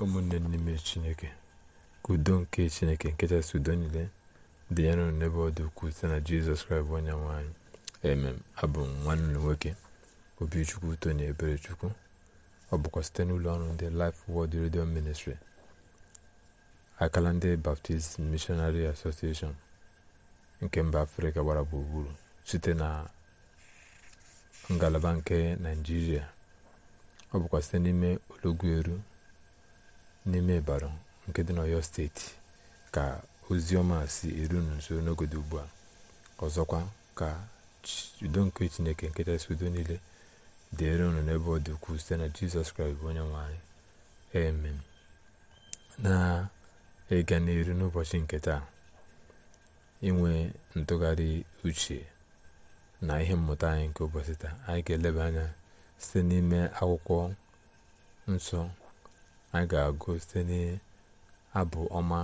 ụmụnne n'ime chineke ka udo nke chineke nkechasị udo niile dị ya nụrụ n'ebe ọ dị ukwuu site na jizọs kraịst bụ onye nwanyị emem abụ nwanne nwoke obichukwu tony eberechukwu ọ bụkwa site n'ụlọ ọrụ ndị Life Word redio Ministry akala ndị Baptist Missionary Association nke mba afrịka gbara gburugburu site na ngalaba nke naijiria ọ bụkwa site n'ime olọgwueru n'ime ịbara nke dị n'ọyọ steeti ka ozi ọma si eru nso n'ogode ugbu a ọzọkwa ka udo nke chineke nke kachasị udo niile dị unu n'ebe ọ dị ukwuu site na jizọs kraịst bụ onye nwanyị anyị na ịga n'iru n'ụbọchị nke taa inwe ntụgharị uche na ihe mmụta anyị nke ụbọchị taa anyị ga-eleba anya site n'ime akwụkwọ nsọ a ga-agụ site n'abụ ọma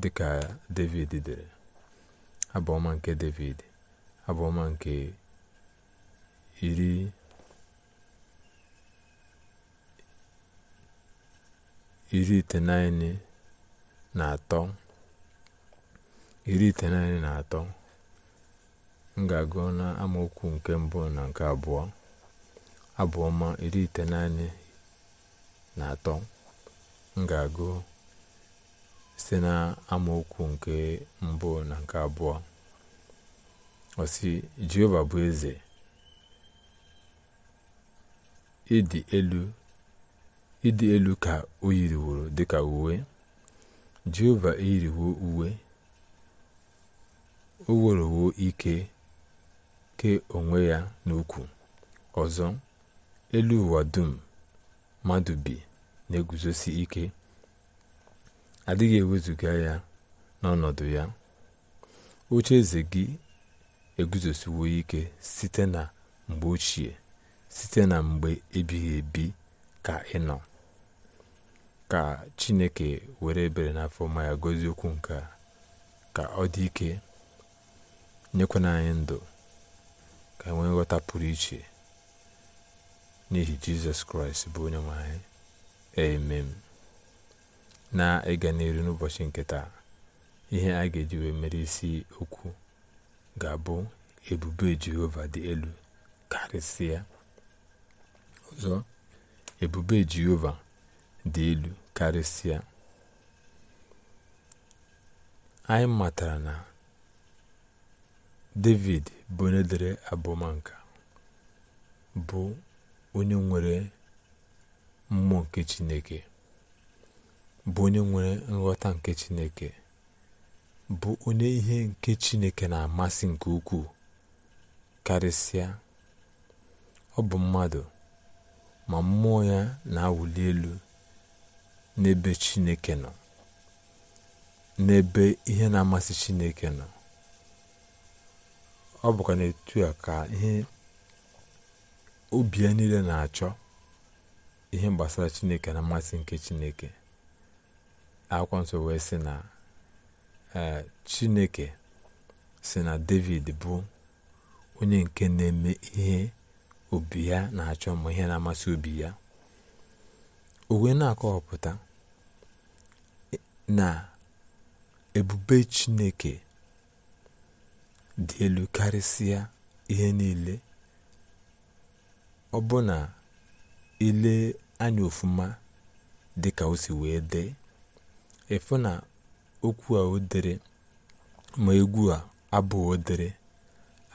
dịka david dere abụ ọma nke david abụ ọma nke iri iri itenaịnị na atọ iri itenaịnị na atọ m ga-agụ na amaokwu nke mbụ na nke abụọ abụ ọma iri itenaịnị na atọ m ga-agụ site na amaokwu nke mbụ na nke abụọ ọsị jehova bụ eze ịdị elu ịdị elu ka o yiriworo dịka uwe jehova eyiriwo uwe o werowo ike ke onwe ya n'ukwu ọzọ elu ụwa dum mmadụ bi na-eguzosi ike adịghị ewezuga ya n'ọnọdụ ya oche eze gị eguzosiwo ike site na mgbe ochie site na mgbe ebighị ebi ka ịnọ ka chineke were ebere n'afọ ma ya gozie okwu nke a ka ọ dị ike nyekwana anyị ndụ ka enwee nghọta pụrụ iche n'ihi jizọs kraịst bụ onye nwe anyị amen na ịga n'elu n'ụbọchị nke taa ihe a ga-eji wee mere isi okwu ga-abụ ebube jehova dị elu karịsịa ọzọ ebube jehova dị elu karịsịa anyị matara na david bụ onye dere abụmanka bụ onye nwere mmụọ nke chineke bụ onye nwere nghọta nke chineke bụ onye ihe nke chineke na-amasị nke ukwuu karịsịa ọ bụ mmadụ ma mmụọ ya na-awụli elu n'ebe chineke nọ n'ebe ihe na-amasị chineke nọ ọ bụkwa n'etu a ka ihe obi ya niile na-achọ ihe gbasara chineke na mmasị nke chineke akwụkwọ nsọ wee sị na e, chineke si na david bụ onye nke na-eme ihe obi ya na-achọ ma ihe na-amasị obi ya o wee na-akọwapụta na ebube chineke dị elu karịsịa ihe niile ọbụna ilee anya ofuma dịka o si wee dee ịfụ na okwu a o ma egwu a abụ o dere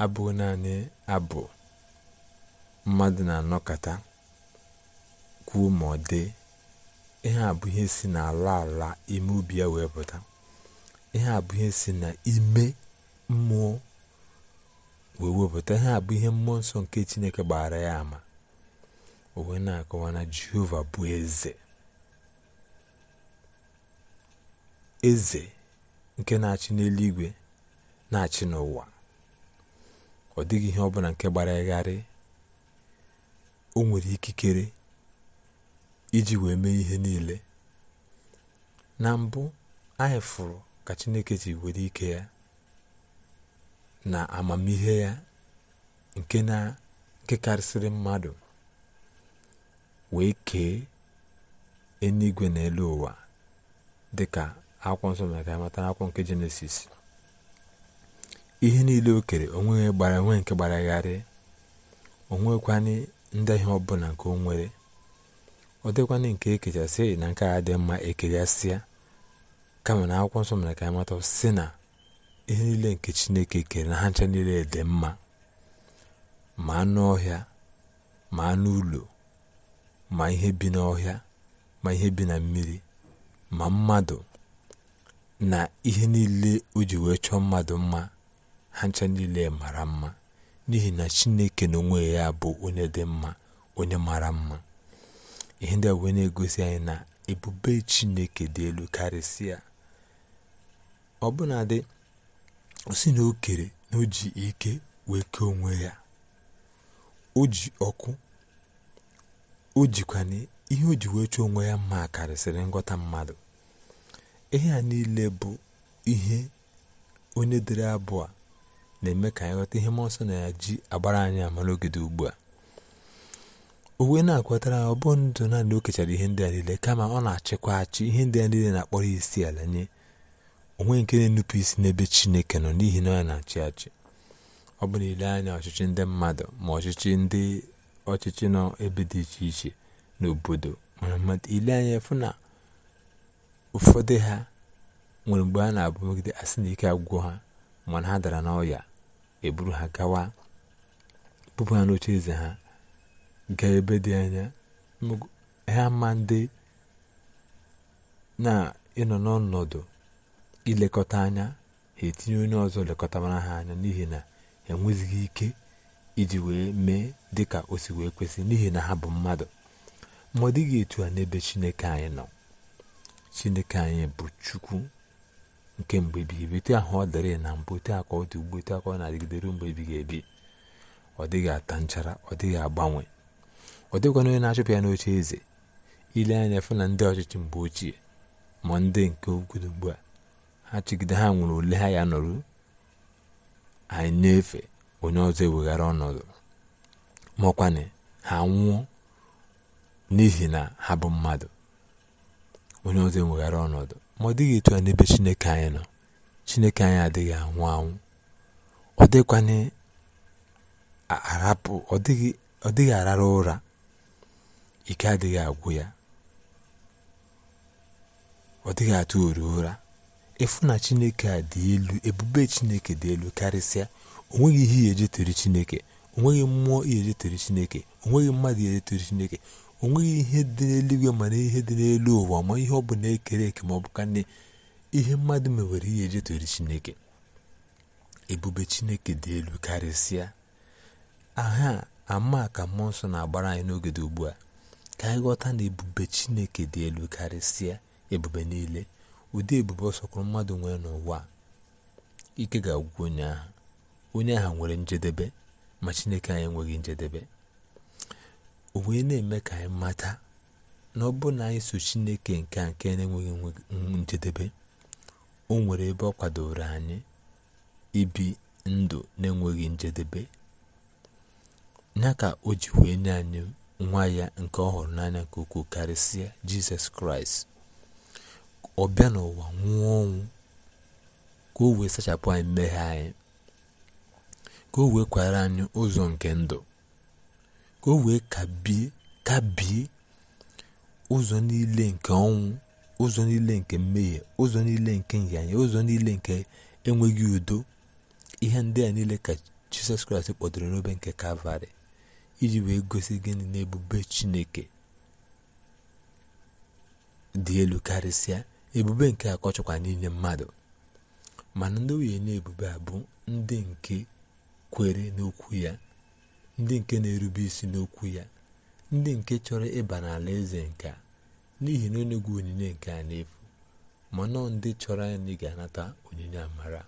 abụghị naanị abụ mmadụ na-anọkọta kwuo ma ọ dị ihe a bụ ihe si n'ala ala ime obi ya wee pụta ihe a bụ ihe si n'ime mmụọ wee wepụta ihe a bụ ihe mmụọ nsọ nke Chineke gbara ya ama o na-akọwa na jehova bụ eze eze nke na-achị n'eluigwe na-achị n'ụwa ọ dịghị ihe ọ ọbụla nke gbara gharị o nwere ikikere iji wee mee ihe niile na mbụ anyị fụrụ ka chineke ji were ike ya na amamihe ya nke na nke karịsịrị mmadụ wee kee eluigwe na elu ụwa dịka akwụkwọ nsọ mere ka anyị mata akwụkwọ nke jenesis ihe niile o kere onweghị gbara onwe nke gbaragharị onwekwanị ọ ọbụla nke onwere nwere ọ dịkwanị nke ekechasị na nke a dị mma ekechasịa kama na akwụkwọ nsọ mere ka anyị mata si na ihe niile nke chineke kere na ha ncha niile dị mma ma anụ ọhịa ma anụ ụlọ ma ihe bi n'ọhịa ma ihe bi na mmiri ma mmadụ na ihe niile o ji wee chọọ mmadụ mma ha ncha niile mara mma n'ihi na chineke na onwe ya bụ onye dị mma onye mara mma ihe ndị a wee na-egosi anyị na ebube chineke dị elu karịsịa ọbụnadị o si na o kere na o ji ike wee kee onwe ya o ji ọkụ o jikwana ihe o ji wee chọọ onwe ya mma karịsịrị nghọta mmadụ ihe a niile bụ ihe onye dere abụ a na-eme ka anyị ghọta ihe mmụọ nsọ na ya ji agbara anyị amara ogede ugbu a o wee na-akwatara ọ bụ ndụ naanị o kechara ihe ndị a niile kama ọ na-achịkwa achị ihe ndị a niile na-akpọrọ isi ala nye onwe nke na-enupụ isi n'ebe chineke nọ n'ihi na ọ na-achị achị ọ bụ na ile anya ọchịchị ndị mmadụ ma ọchịchị ndị ọchịchị nọ ebe dị iche iche n'obodo mana mma ile anya fụ na ụfọdụ ha nwere mgbe a na-abụgide asị na ike agwụ ha mana ha dara n'ọya eburu ha gawa bụpụ ha n'oche eze ha gaa ebe dị anya ha ma ndị na ịnọ n'ọnọdụ ilekọta anya ha etinye onye ọzọ lekọtamara ha anya n'ihi na enwezighị ike iji wee mee dị ka o si wee kwesị n'ihi na ha bụ mmadụ ma ọ dịghị etu a n'ebe chineke anyị nọ chineke anyị bụ chukwu nke mgbe ebighị ebi ahụ ọ dịrị na mbụ etu aka ọ ugbo etu ọ na-adịgide ruo mgbe ebighị ebi ọ dịghị ata nchara ọ dịghị agbanwe ọ dịkwana onye na-achụpụ ya n'oche eze ile anya fụ na ndị ọchịchị mgbe ochie ma ndị nke ogodo ugbu a ha chigide ha nwere ole ha ya nọrụ anyị na-efe onye ọzọ eweghara ọnọdụ maọkwanị ha nwụọ n'ihi na ha bụ mmadụ onye ọzọ eweghara ọnọdụ ma ọ dịghị etu ya n'ebe chineke anyị nọ chineke anyị adịghị anwụ anwụ ọ dịghịkwana arapụ ọ dịghị arara ụra ike adịghị agwụ ya ọ dịghị atụ oru ụra ịfụ na chineke a dị elu ebube chineke dị elu karịsịa o ihe ihe ejetere chineke onweghị mmụọ ihe ejetere chineke onweghị mmadụ ihe ejetere chineke o nweghị ihe dị n'eluigwe mana ihe dị n'elu ụwa ma ihe ọ bụ na-ekere eke ma ọ bụ ka na ihe mmadụ mewere ihe ejetere chineke ebube chineke dị elu karịsịa aha ama ka mmụọ nsọ na-agbara anyị n'oge dị ugbu a ka anyị ghọta na ebube chineke dị elu karịsịa ebube niile ụdị ebube ọsọkwụrụ mmadụ nwere n'ụwa ike ga-agwụ onye ahụ onye ahụ nwere njedebe ma chineke anyị enweghị njedebe o wee na-eme ka anyị mata na ọ bụrụ na anyị so chineke nke a nke na-enweghị njedebe o nwere ebe ọ kwadoro anyị ibi ndụ na-enweghị njedebe ya ka o ji wee nye anyị nwa ya nke ọhụrụ hụrụ n'anya nke ukwuu karịsịa jizọs kraịst ọ bịa n'ụwa nwụọ ọnwụ ka o wee sachapụ anyị mmeghe anyị ka o wee kwara anyị ụzọ nke ndụ ka o wee kabie ụzọ niile nke ọnwụ ụzọ niile nke mmehie ụzọ niile nke nyanya ụzọ niile nke enweghị udo ihe ndị a niile ka jizọs kraịst kpọdoro n'obe nke kalvarị iji wee gosi gịnị n'ebube chineke dị elu karịsịa ebube nke akọchọkwa n'inye mmadụ mana ndị nwunye na ebube a bụ ndị nke kwere n'okwu ya ndị nke na-erube isi n'okwu ya ndị nke chọrọ ịba n'ala eze nke n'ihi na onye gwu onyinye nke a n'efu ma nọọ ndị chọrọ anyị ga-anata onyinye amara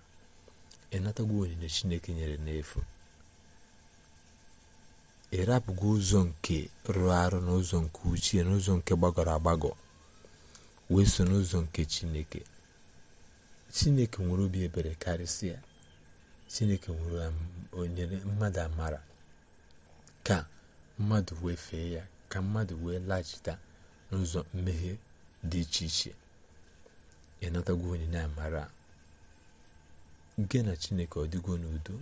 ịnatagwo onyinye chineke nyere n'efu ịrapụgo ụzọ nke rụrụ arụ n'ụzọ nke uchie n'ụzọ nke gbagọrọ agbagọ wee so n'ụzọ nke chineke chineke nwere obi ebere karịsịa chineke nwere onyere mmadụ amara ka mmadụ wee fee ya ka mmadụ wee laghachita n'ụzọ mmehie dị iche iche onye na amara gị na chineke ọ dịgo n'udo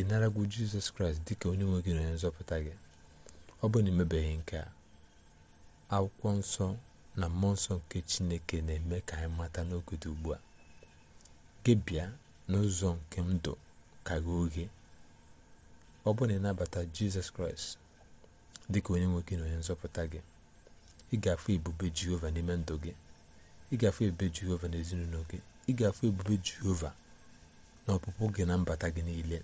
ị naragwo jizọs kraịst dị ka onye nwe gị na onye nzọpụta gị ọ bụ na emebeghị nke a akwụkwọ nsọ na mmụọ nsọ nke chineke na-eme ka anyị mata n'oge dị ugbu a gị bịa n'ụzọ nke ndụ karịa oge ọ bụrụ na ịnabata jizọs kraịst dịka onye nwoke na onye nzọpụta gị ị ga-afụ ebube jehova n'ime ndụ gị ị ga-afụ ebube jehova n'ezinụlọ gị ị ga-afụ ebube jehova na ọpụpụ gị na mbata gị niile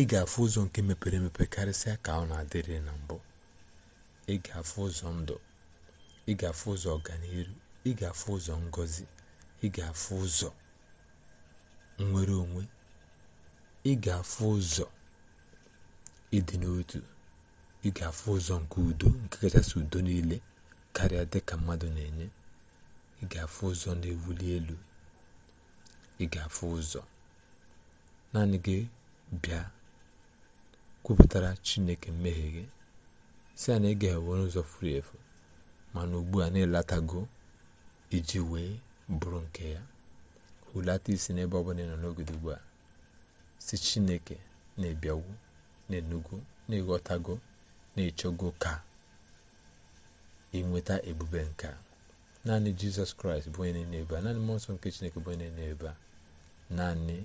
ị ga-afụ ụzọ nke mepere emepe karịsịa ka ọ na-adịrị na mbụ ị ga-afụ ụzọ ndụ ị ga-afụ ụzọ ọganihu ị ga-afụ ụzọ ngozi ị ga-afụ ụzọ nwere onwe ị ga-afụ ụzọ ịdị n'otu ị ga-afụ ụzọ nke udo nke kachasị udo niile karịa dịka mmadụ na-enye ị ga-afụ ụzọ na-ewuli elu ị ga-afụ ụzọ naanị gị bịa kwupụtara chineke mmehie gị si ya na ị ga ụzọ furu efu mana ugbu a na-elatago iji wee bụrụ nke ya hulata isi n'ebe ọ bụla ị nọ n'ogodo ugbu a si chineke na ebiagwu na-enugo na-eghọtago na-echọgo ka inweta ebube nka naanị jizọs kraịst bụ onye na ebe a naanị mmụọ nsọ nke chineke bụ onye na a naanị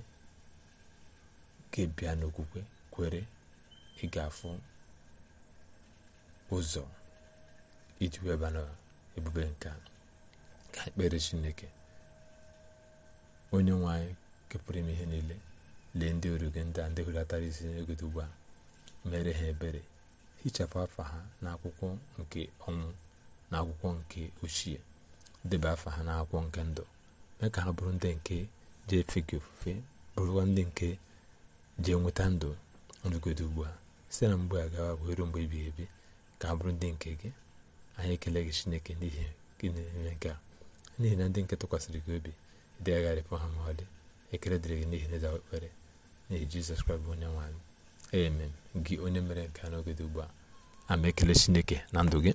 ga bịa n'okwukwe kwere ị ga-afụ ụzọ iji ebube nke ka ekpere chineke onye nwe anyị kepụrụ ime ihe niile lee ndị oru gị ndị a ndị hulatara isi n'ogodo ugbu a mere ha ebere hichapụ afa ha n'akwụkwọ nke ọnwụ na akwụkwọ nke ochie deba afa ha n'akwụkwọ nke ndụ mee ka ha bụrụ ndị nke jee efe gị ofufe bụrụkwa ndị nke jee nweta ndụ n'ogodo ugbu a site na mgbe a gawa bụ mgbe ebighị ebi ka ha bụrụ ndị nke gị anyị ekele gị chineke n'ihi gị na-eme nke a n'ihi na ndị nke tụkwasịrị gị obi degharịpụ ha ma ọ dị ekele dịrị gị n'ihi na ịza ekpere n'ihi jizọs kraịst bụ onye nwanyị amen gị onye mere nke a n'oge dị ugbu a ama ekele chineke na ndụ gị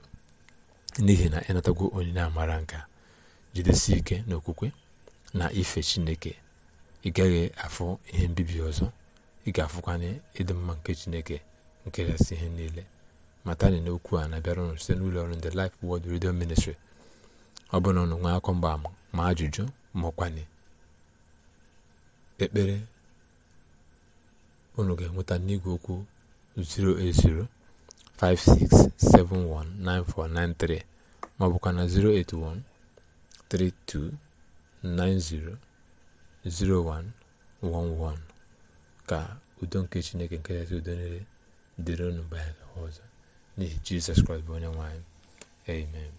n'ihi na ịnatagwo na amara nka jidesi ike n'okwukwe na ife chineke ị gaghị afụ ihe mbibi ọzọ ị ga-afụkwanye ịdị mma nke chineke nke nkeresị ihe niile matani n'okwu a na-abịara ụnụ site n'ụlọ ọrụ ndị Life wod Radio Ministry ọ bụrụ na ụnụ nwee akọ mgba ama ajụjụ maọkwanị ekpere unu ga-enweta n'igwe okwu 08056719493 maọbụkwa na 08132900111 ka udo nke chineke nke kachasị udo nile dịrị unu mgbe ọzọ n'ihi jizọs kraịst bụ onye nwanyị amen